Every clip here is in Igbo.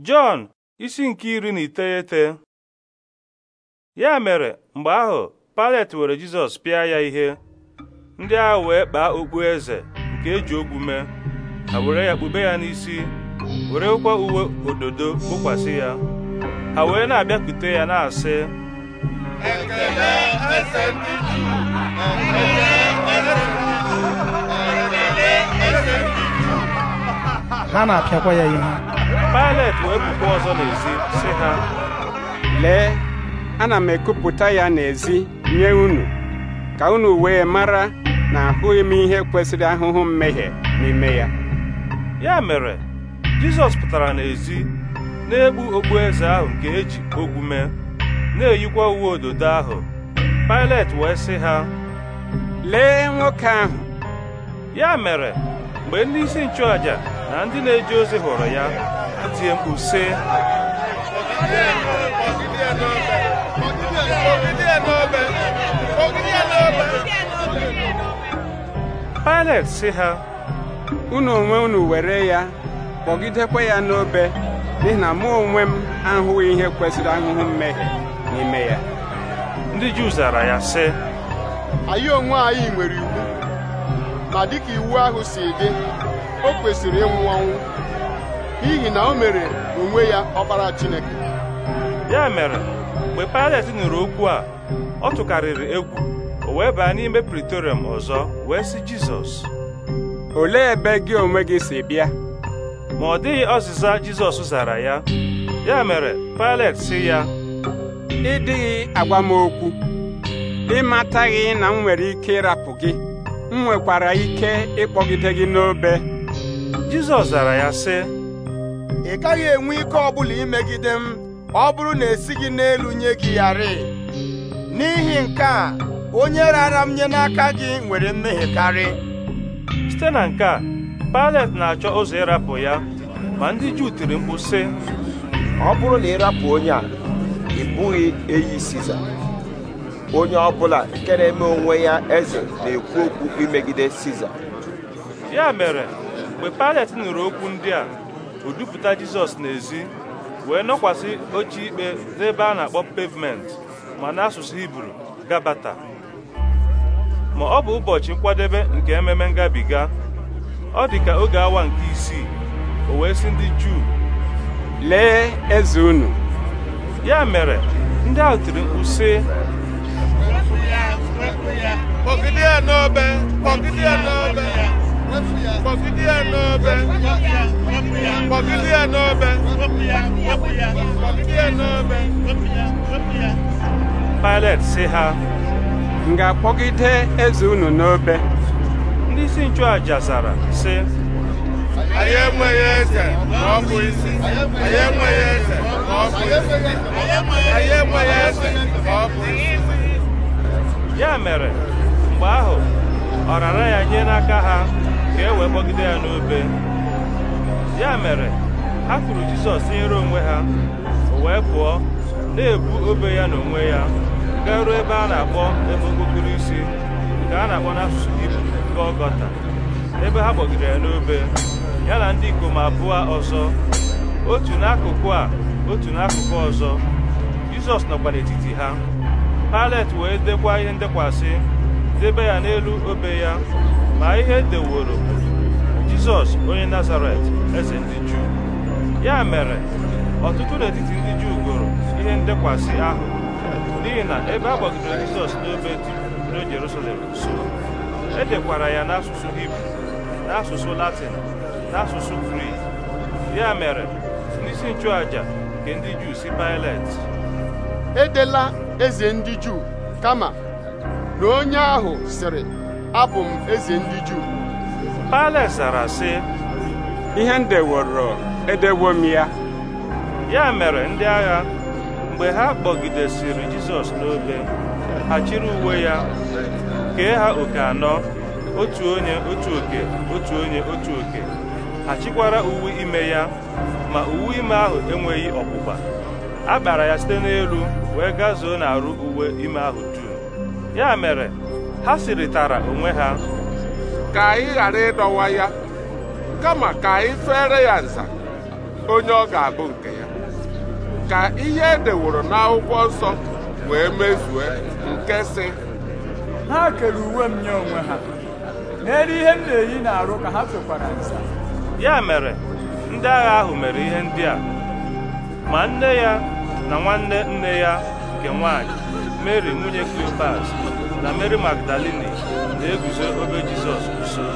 Jọn isi nke iri na iteghete ya mere mgbe ahụ palet were Jizọs pịa ya ihe ndị ahụ wee kpaa okpu eze nke eji okwu mee ha were ya kpube ya n'isi were werekwa uwe ododo kpokwasị ya ha wee na-abịakwute ya na-asị Ekele eze Ekele ha na-apịakwa ya ihe pilate wee puku ọzọ n'ezi sị ha lee ana m ekupụta ya n'ezi nye unu ka unu wee mara na ahụghị m ihe kwesịrị ahụhụ mmehie n'ime ya ya mere Jizọs pụtara n'ezi na-egbu eze ahụ nke eji ogwu mee na-eyikwa uwe ododo ahụ pilate wee sị ha lee nwoke ahụ ya mere mgbe ndị isi nchụàjà na ndị na-eje ozi hụrụ ya tie mkpu Pilet si ha unu onwe unu were ya kpọgidekwa ya n'obe n'ihi na mụ onwe m ahụghị ihe kwesịrị ahụhụ mmehie n'ime ya ndị Juu zara ya sị anyị onwe anyị nwere iwu ma dịka iwu ahụ si dị o kwesịrị ịnwụ ọnwụ n'ihi na o mere onwe ya ọkpara Chineke ya mere mgbe Pilet nụrụ okwu a ọ tụkarịrị egwu o wee baa n'ime Praetorium ọzọ wee sị Jizọs olee ebe gị onwe gị si bịa ma ọ dịghị ọzịza Jizọs zara ya ya mere Pilet sị ya ị dịghị agwa m okwu ị mataghị na m nwere ike ịrapụ gị m nwekwara ike ịkpọgide gị n'obe Jizọs zara ya sị ị gaghị enwe ike ọbụla imegide m ọ bụrụ na esighị n'elu nye gị yarị n'ihi nke a onye rara m nye n'aka gị nwere mmehie karị site na nke a Pilet na-achọ ụzọ ịrapụ ya ma ndị Juu tiri mkpu sị ọ bụrụ na ịrapụ onye a ị bụghị eyi Siza onye ọ bụla nke na-eme onwe ya eze na-ekwu okwu imegide Siza ya mere mgbe Pilet nụrụ okwu ndị a udupụta jizọs n'ezi wee nọkwasị oche ikpe n'ebe a na-akpọ pavement ma n'asụsụ hibru gabata ma ọ bụ ụbọchị nkwadebe nke ememe ngabiga ọ dị ka oge awa nke isii o wee sị ndị juu lee eze unu ya mere ndị ahụ tiri mkpu kpọgide ya n'obe Pilet si ha m ga-akpọgide eze unu n'obe ndị isi nchụaja zara si anyị enweghị eze ma ọ bụ isi anyị enweghị eze ma ọ bụ isi anyị enweghị ya mere mgbe ahụ ọrara ya nye n'aka ha ka e wee kpọgide ya n'obe ya mere ha kwuru jizọs nyere onwe ha wee pụọ na-ebu obe ya n'onwe ya garuo ebe a na-akpọ ebe okpokoro isi nke a na-akpọ n'asụsụ Hibru ọgọta ebe ha kpọgidere ya n'obe ya na ndị ikom abụọ ọzọ otu n'akụkụ a otu n'akụkụ ọzọ Jizọs nọkwa n'etiti ha Palet wee dekwa ihe ndekwasị debe ya n'elu obe ya ma ihe deworo jizọs onye nazaret eze ndị juu ya mere ọtụtụ n'etiti ndị juu gụrụ ihe ndekwasị ahụ n'ihi na ebe a gbagidere jizọs n'obe dị n'oge jerusalem e edekwara ya n'asụsụ hibru n'asụsụ latin n'asụsụ grik ya mere n'isi nchụaja nke ndị juu si pilet edela eze ndị juu kama na onye ahụ sịrị abụ m eze ndị Juu Pailet zara sị ihe m deworo edewo m ya ya mere ndị agha mgbe ha kpọgidesịrị Jizọs n'obe ha chịrị uwe ya kee ha oke anọ otu onye otu oke otu onye otu oke ha chịkwara uwe ime ya ma uwe ime ahụ enweghị ọkpụkpa a kpara ya site n'elu wee gazuo arụ uwe ime ahụ dum ya mere ha sịrịtara onwe ha ka anyị ghara ịdọwa ya kama ka anyị fere ya nza onye ọ ga-abụ nke ya ka ihe edeworo n'akwụkwọ nsọ wee mezue nke si ha kere uwe m nye onwe ha n'elu ihe m na-eyi arụ ka ha fekwara nza ya mere ndị agha ahụ mere ihe ndị a ma nne ya na nwanne nne ya nke nwanyị mary nwunye Cleopas na mary magdalini na-eguzo obe jizọs nso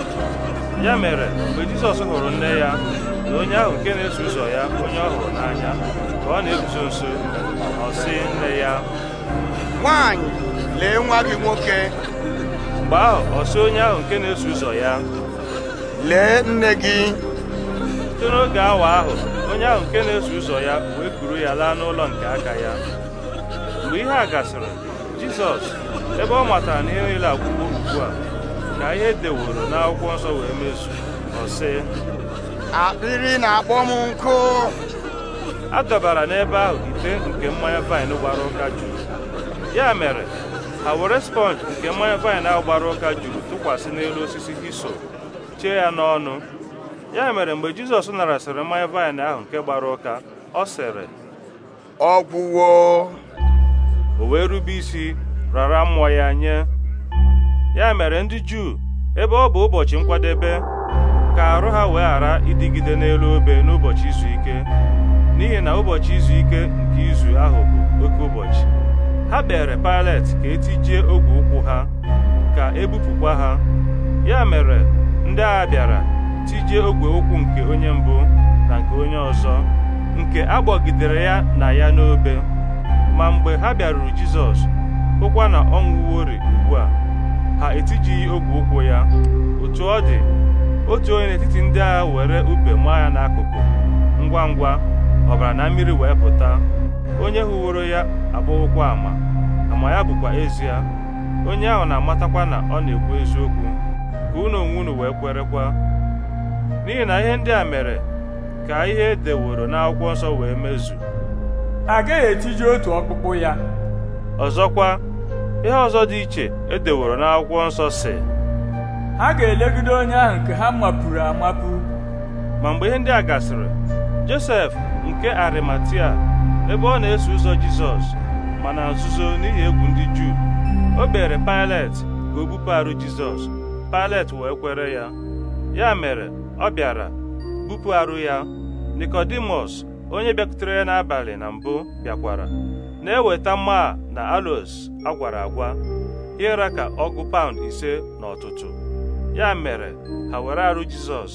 ya mere mgbe jizọs hụrụ nne ya na onye ahụ nke na-eso ụzọ ya onye ọ hụrụ n'anya ka ọ na-eguzo nso ọ sị nne ya nwanyị lee nwa gị nwoke mgbe ahụ ọ onye ahụ nke na-eso ụzọ ya lee nne gị site n'oge awa ahụ onye ahụ nke na-eso ụzọ ya wee kuru ya laa n'ụlọ nke aka ya mgbe ihe a gasịrị jizọs ebe ọ matara na ihe niile agwụwo ugbu a ka ihe deworo n'akwụkwọ nsọ wee mezu ọ sị akpịrị na-akpọ m nkụ a dọbara n'ebe ahụ ite nke mmanya vaịn gbara ụka juru ya mere ha were sponge nke mmanya vaịn ahụ gbara ụka juru tụkwasị n'elu osisi hiso chee ya n'ọnụ ya mere mgbe jizọs narasịrị mmanya vaịn ahụ nke gbara ụka ọ sịrị ọgwụwo o wee rube isi rara mmụọ ya nye ya mere ndị Juu ebe ọ bụ ụbọchị nkwadebe ka arụ ha wee ghara ịdịgide n'elu obe n'ụbọchị izu ike n'ihi na ụbọchị izu ike nke izu ahụ bụ oke ụbọchị ha kpere Pilet ka etijie ogwe ụkwụ ha ka ebupụkwa ha ya mere ndị agha bịara tijie ogwe ụkwụ nke onye mbụ na nke onye ọzọ nke agbọgidere ya na ya n'obe ma mgbe ha bịaruru Jizọs hụkwa na ọ nwụworị ugbu a ha etijighị ogwe ụkwụ ya otu ọ dị otu onye n'etiti ndị agha were ube maa ya n'akụkụ ngwa ngwa ọbara na mmiri wee pụta onye hụworo ya abụghịkwa ama ama ya bụkwa ezie onye ahụ na-amatakwa na ọ na-ekwu eziokwu ka unu onwe unu wee kwerekwa n'ihi na ihe ndị a mere ka ihe edeworo n'akwụkwọ nsọ wee mezu agaghị etiji otu ọkpụkpụ ya ọzọkwa ihe ọzọ dị iche edeworo n'akwụkwọ nsọ si ha ga-elegide onye ahụ nke ha mapụrụ amapụ ma mgbe ihe ndị a gasịrị Josef nke Arimatia ebe ọ na-eso ụzọ Jizọs ma na nzuzo n'ihi egwu ndị Juu o kpere Pilet ka o bupụ Jizọs Pilet wee kwere ya ya mere ọ bịara bupụ arụ ya Nikodimus onye bịakutere ya n'abalị na mbụ bịakwara na-eweta mma na alos agwara agwa ịra ka ọgụ paụnd ise na ọtụtụ ya mere ha were arụ jizọs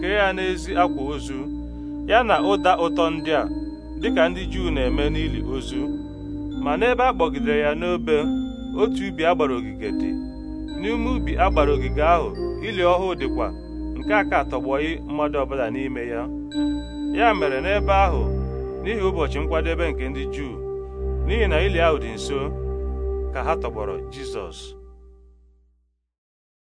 kee ya n'ezi akwa ozu ya na ụda ụtọ ndị a dịka ndị juu na-eme n'ili ozu ma n'ebe a kpọgidere ya n'obe otu ubi agbara ogige dị n'ime ubi agbara ogige ahụ ili ọhụụ dịkwa nke a ka tọgbọghị mmadụ ọbụla n'ime ya ya mere n'ebe ahụ n'ihi ụbọchị nkwadebe nke ndị Juu n'ihi na ili ahụ dị nso ka ha tọgbọrọ Jizọs